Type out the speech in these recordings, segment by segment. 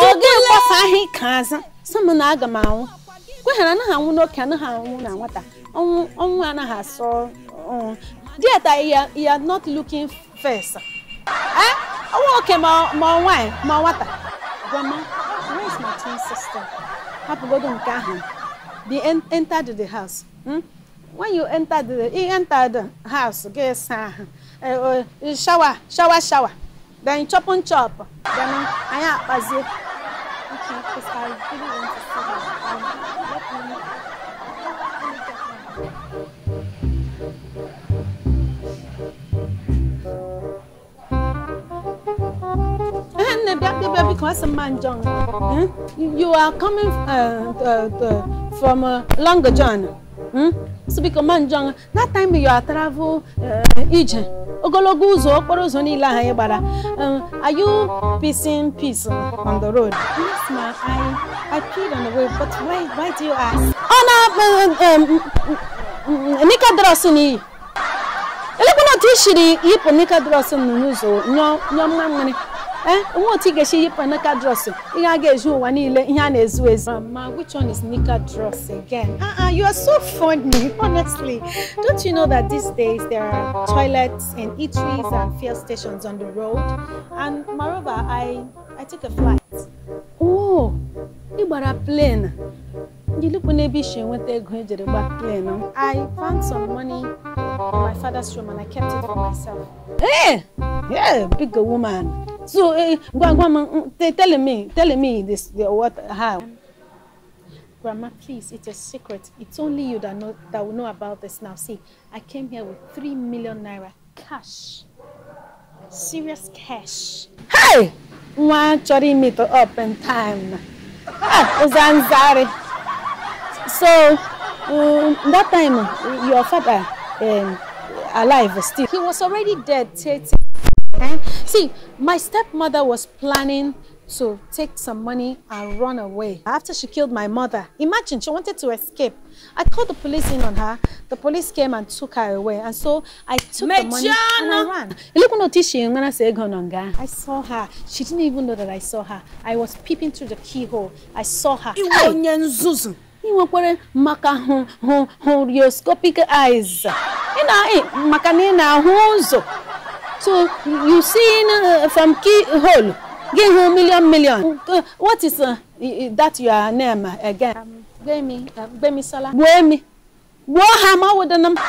oge mkpọsa ahụ ike o sị m na aga o anwụ kweghara anaghị anwụ o anaghị anwụ na nwata o anaghị asọ dieta ya not looking first ọnwa é? oke o nwaanyị ma nwata é, grandma where is my twin sister hapụgodo nke ahụ they entered the house hmm? when you entered the, enter the house ga-esa é ahụ shower shower shower then chop and chop then um, anyị akpazie Okay, because I really want to see that. Um, let me, let me get one. because Manjong, eh? you are coming uh, the, uh, the, uh, from uh, Long John. Hmm? So because Manjong, that time you are travel uh, agent. ogologo ụzọ okporo ụzọ niile ahụ anyị gbara um, are you peacing peace on the road? Yes, ma, I, I peed on the way. but why, why do you ask? Ọ na um, um, Nicodrus n'iyi elekwana otu i shiri yipụ Nicodrus n'ụzọ nyọ mmamịrị Eh? ihe a ihe a na-ezu ezu um, which one is nika dress again uh -uh, you are so funny honestly don't you know that these days there are toilets and eateries and fuel stations on the road and moreover i i took a flight oh ị a plane Gilukwu n'ebe isi enweta ego ejere gba plane I found some money in my father's room and I kept it for myself. Hey! Yeah, big woman. So, uh, eh, Grandma, mm, tell me, tell me this, what, how. Grandma, please, it's a secret. It's only you that know that will know about this now. See, I came here with three million naira cash, serious cash. Hey, one chori meet up in time. Zanzari. So, um, that time, your father um, alive still. He was already dead, thirty. Okay? See, my stepmother was planning to take some money and run away. After she killed my mother, imagine she wanted to escape. I called the police in on her. The police came and took her away. And so I took Mejana. the money and I ran. I saw her. She didn't even know that I saw her. I was peeping through the keyhole. I saw her. Hey! want nwekwara maka horioscopic eyes eh, So you seen uh, from hole, give him million million. Uh, what is uh, that your name again? Um, Gbemi, uh, um, Sala. Gbemi. Wohama with the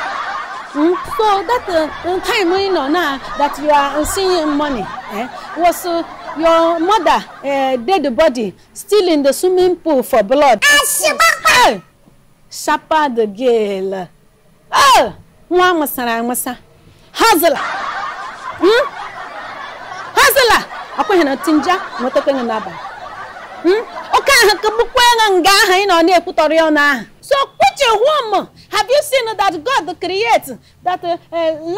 Mm? So that uh, time you know now that you are seeing money eh, was uh, your mother uh, eh, dead body still in the swimming pool for blood. Ah, hey! Sharper the girl. Oh! Nwa amasara amasa. Hazla! Hmm? hazela akwụghị na tinja nwetakwenye n'abalị hmm? oke aha ka bụkwenye nga aha ị nọ na-ekwutọrọ ya ahụ so which womb have you seen that God create that uh,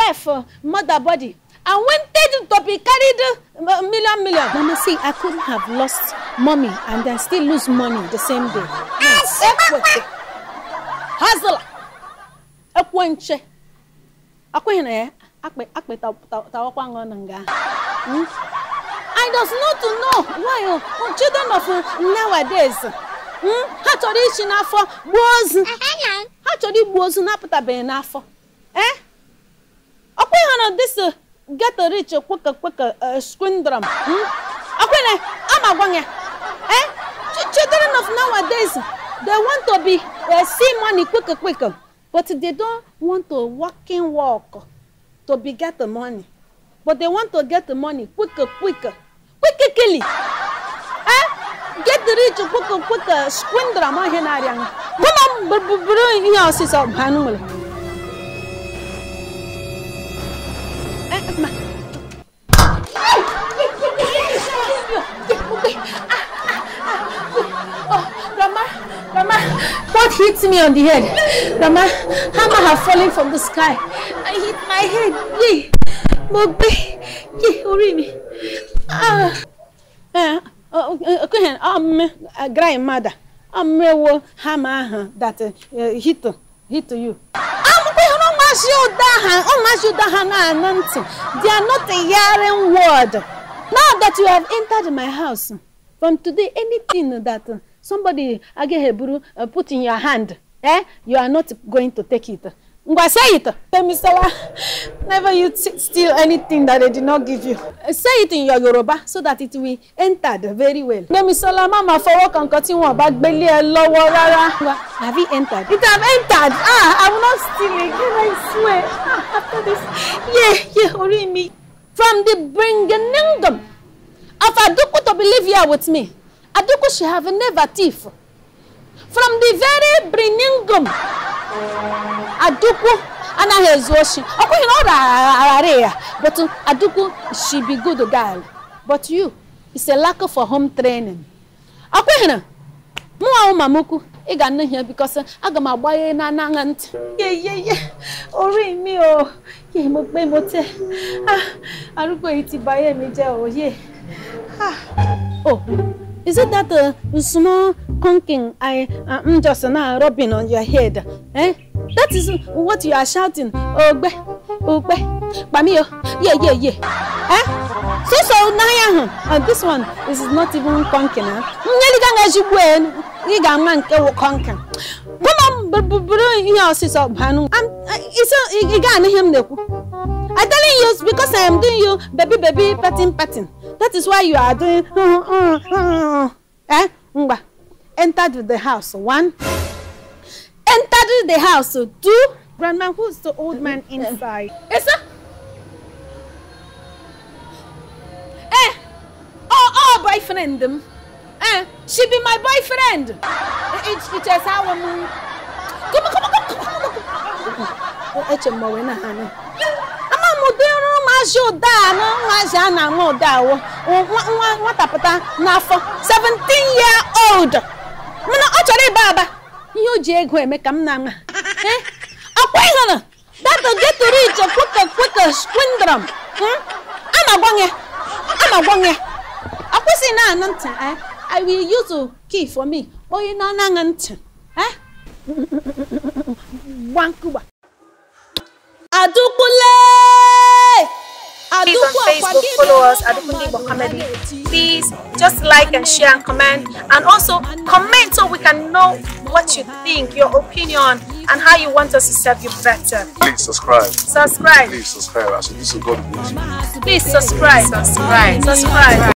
life uh, mother body and when wanted to be carried uh, million million. Mama see, I could have lost mommy and then still lose money the same day. Yes, hustle. akwụghị na ya. akpịtawakwa na nga hmm? I does not to know why children of nowadays hmm? ha chọrọ ichi n'afọ gbuo ozu ha chọrọ igbu ozu na-apụtabeghị n'afọ ee eh? ọkwa ha na this ghetto rich kweka kweka eh, skwindrom hmm? ọkwene ama gwa ya eh? children of nowadays they want to be see money quick quick but they don't want to work. to be get the money. But they want to get the money quicker, quicker, quicker, quickly. Eh? Get the rich quicker, quicker, squander br Henarian. Woman, but brewing your sister, Hanul. What hit me on the head? Mama, hammer have fallen from the sky. I hit my head. Yay! Mobe! hurry me. Ah! Eh, okay, um, grandmother, I'm a hammer that uh, uh hit, hit you. mash you down, oh mash you down anointing. They are not a hearing word. Now that you have entered my house, from today anything that uh, somebody agaheburu uh, put in your hand eh you are not going to take it ngwa say it tell me say never you steal anything that they did not give you uh, say it in your Yoruba so that it will enter very well gbemisola mama fọwọ́ kan kan tí wọn bá gbélé ẹ lọ́wọ́ rárá have you entered it have entered ah i will not steal it. Can i swear ah, after this yeah yeah orí mi from the bringing of aduku to believe here with me she have never thief From the very beginning, Aduku anaghị ezu oshi. Ọ kwụghị na ọ rara ya, but uh, Aduku she be good girl. But you, it's a lack for home training. Ọ kwụghị na mụnwa ụmamukwu ị ga nne ya because aga uh, m agbanye na anaghị ntị. Yeyeye, orí mi o, yẹ mo pé mo tẹ́, arúgbó yìí ti bà ayé mi jẹ́ òye. Oh. Is it that uh, small conking I am uh, mm, just now rubbing on your head? Eh? That is what you are shouting. Oh Ogbe, ogbe, bamiyo, yeah, yeah, yeah. Eh? So so now and this one this is not even conking. Eh? Ngeliga ngajibwe, ngiga manke bụrụ ihe ọsịsọ banu isi ị ga-anụ ihe m na-ekwu I telling you because I am doing you baby baby patin, patin. that is why you are doing uh, uh, uh, eh ngwa entered the house one entered the house two grandma who's the old man inside esa eh oh oh boyfriend m um, eh she be my boyfriend it it is how echema na ama m ụdị ọrụ maazị ụda na maazị a na-ama ụda awọ nwa nwatapụta n'afọ 17 year old ọ chọrọ ịba aba ihe o ji ego eme ka m na-ama akwa ịhụrụ na ntị eh? Wankuba. Adukule! Please on Facebook follow us Adukunle Bokamedi. Please just like and share and comment and also comment so we can know what you think, your opinion and how you want us to serve you better. Please subscribe. Subscribe. Please subscribe. Actually, this Please Subscribe. Subscribe.